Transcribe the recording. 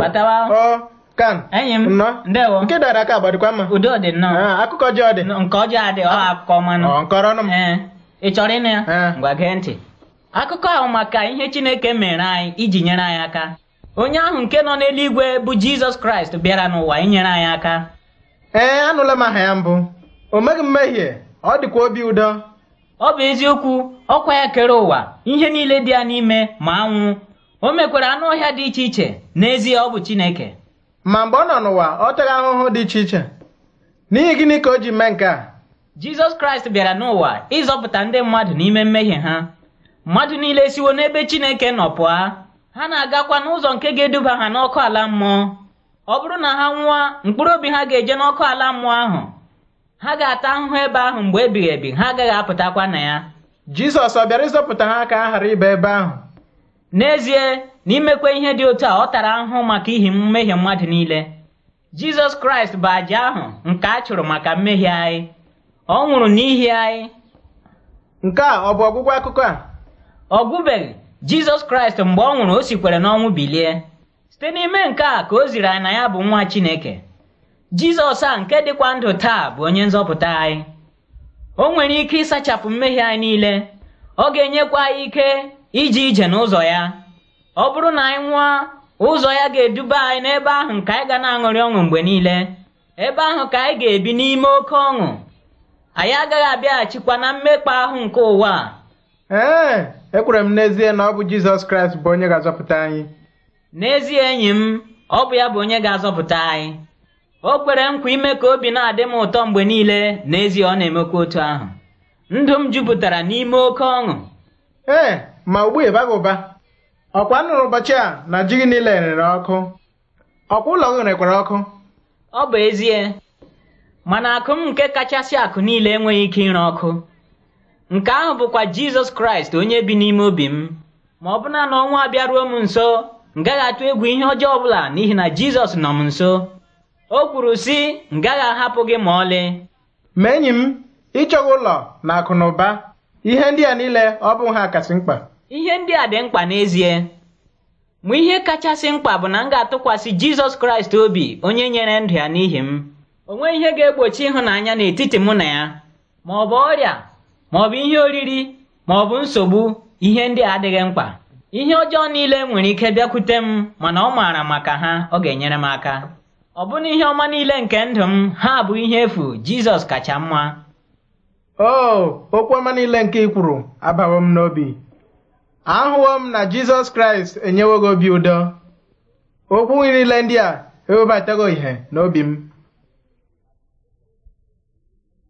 batawa kam enyi m ndewo nke dara aka gbadikwa mma udo dị nnọọ ah, akụkọ ọjọọ dị nke ọjọọ adị ọ akụkọ ọmanụ nkọrọ ọnụ m eh, ị chọrọ ịnụ ya ngwa eh. gee ntị akụkọ ahụ maka ihe chineke mere anyị iji nyere anyị aka onye ahụ nke nọ n'eluigwe bụ jizọs kraịst bịara n'ụwa inyere anyị aka ee eh, anụla m aha ya mbụ o meghị mmehie ọ dịkwa obi ụdọ ọ bụ eziokwu ọkwa ya kere ụwa ihe niile dị ya n'ime ma anwụ o mekwara anụ ọhịa dị iche iche n'ezie ọ bụ Chineke ma mgbe ọ nọ n'ụwa ọ tara ahụhụ dị iche iche n'ihi gịnị ka o ji mee nke a Jizọs Kraịst bịara n'ụwa ịzọpụta ndị mmadụ n'ime mmehie ha mmadụ niile siwo n'ebe Chineke nọ pụọ ha na-agakwa n'ụzọ nke ga-eduba ha n'ọkụ ala mmụọ ọ bụrụ na ha nwụọ mkpụrụ obi ha ga-eje n'ọkụ ala mmụọ ahụ ha ga-ata ahụhụ ebe ahụ mgbe ebighị ebi ha agaghị apụtakwa na ya Jizọs ọ bịara ịzọpụta ha ka ha ghara ịba ebe ahụ n'ezie na imekwa ihe dị otu a ọ tara ahụhụ maka ihi mmehie mmadụ niile jizọs kraịst bụ àjà ahụ nke a chụrụ maka mmehie anyị ọ nwụrụ n'ihi anyị nke a ọ bụ ọgwụgwọ akụkọ a ọ gwụbeghị jizọs kraịst mgbe ọ nwụrụ o sikwere n'ọnwụ bilie site n'ime nke a ka o ziri anyị na ya bụ nwa chineke jizọs a nke dịkwa ndụ taa bụ onye nzọpụta anyị o nwere ike ịsachapụ mmehie anyị niile ọ ga-enyekwa anyị ike ije ije n'ụzọ ya ọ bụrụ na anyị nwụọ ụzọ ya ga-eduba anyị n'ebe ahụ nke anyị ga na-aṅụrị ọṅụ mgbe niile ebe ahụ ka anyị ga-ebi n'ime oke ọṅụ anyị agaghị abịaghachikwa na mmekpa ahụ nke ụwa ee ekwere m n'ezie na ọ bụ Jizọs Kraịst bụ onye ga-azọpụta anyị n'ezie enyi m ọ bụ ya bụ onye ga-azọpụta anyị o kwere nkwa ime ka obi na-adị m ụtọ mgbe niile n'ezie ọ na-emekwa otu ahụ ndụ m jupụtara n'ime oke ọṅụ ee ma ugbu a ụba ọkwa nụrụ ụbọchị a na ji gị niile rere ọkụ ọkwa ụlọ gị rekwara ọkụ ọ bụ ezie mana akụ m nke kachasị akụ niile enweghị ike ịre ọkụ nke ahụ bụkwa jizọs kraịst onye bi n'ime obi m ma ọ bụna na ọnwa abịaruo m nso ngaghị atụ egwu ihe ọjọọ ọbụla n'ihi na jizọs nọ m nso o kwuru sị ngaghị ahapụ gị ma ọlị ma enyi m ịchọghị ụlọ na akụ na ụba ihe ndị a niile ọ bụ ha kasị mkpa ihe ndị a dị mkpa n'ezie ma ihe kachasị mkpa bụ na m ga-atụkwasị Jizọs Kraịst obi onye nyere ndụ ya n'ihi m o nweghị ihe ga-egbochi ịhụnanya n'etiti mụ na ya ma ọ bụ ọrịa ma ọ bụ ihe oriri ma ọ bụ nsogbu ihe ndị a adịghị mkpa ihe ọjọọ niile nwere ike bịakwute m mana ọ maara maka ha ọ ga-enyere m aka ọ bụna ihe ọma niile nke ndụ m ha bụ ihe efu Jizọs kacha mma o oh, okwu ọma niile nke ị kwuru abawo m n'obi ahụwo m na jizọs kraịst enyewo gị obi ụdọ okwu niile ndị a ewebatago ihe n'obi m